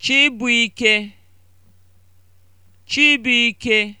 Chibuike Chibuike